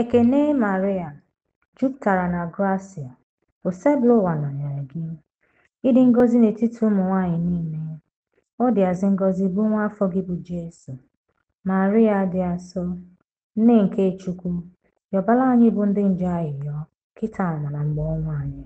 Ekene Maria, jupụtara na gracia, osebụla ụwa anyara gị. Ịdị ngọzi n'etiti ụmụ nwanyị niile, ọ dịazị ngọzi bụ nwa afọ gị bụ Jesu. Maria dị asọ, nne nke Chukwu, yọbala anyị bụ ndị nje ayịyọ, kịta na na mgbe ọnwa anyị.